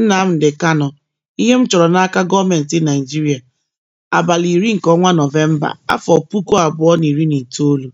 Nnamdi Kano: Ihe m chọrọ n'aka gọọmentị Naijiria. abalị iri nke ọnwa Nọvemba, afọ puku abụọ na iri na itoolu